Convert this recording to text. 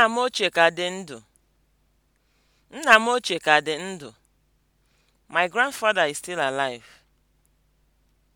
Nna m ochie ka dị ndụ. Nna m ochie ka dị ndụ. My grandfather is still alive.